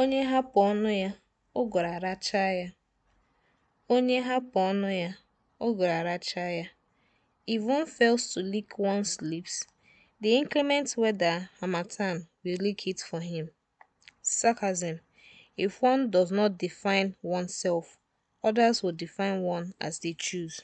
Onye hapụ ọnụ ya, ụgụrụ aracha ya. Onye hapụ ọnụ ya, ụgụrụ arachaa ya. fails to lick one's lips, the inclement weather harmattan will lick it for him. Sarcasm: If one does not define self others will define one as they choose.